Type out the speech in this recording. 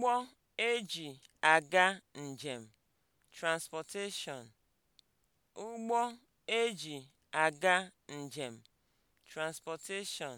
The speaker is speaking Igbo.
Ụgbọ eji aga njem (transportation), eji aga njem (transportation)